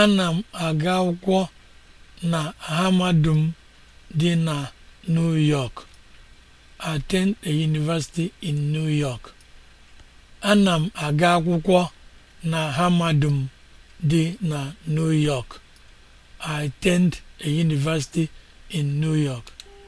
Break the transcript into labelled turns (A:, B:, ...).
A: Ana m aga akwụkwọ na Hamadum dị na m aga akwụkwọ na dị na New York. I attend a university in New York.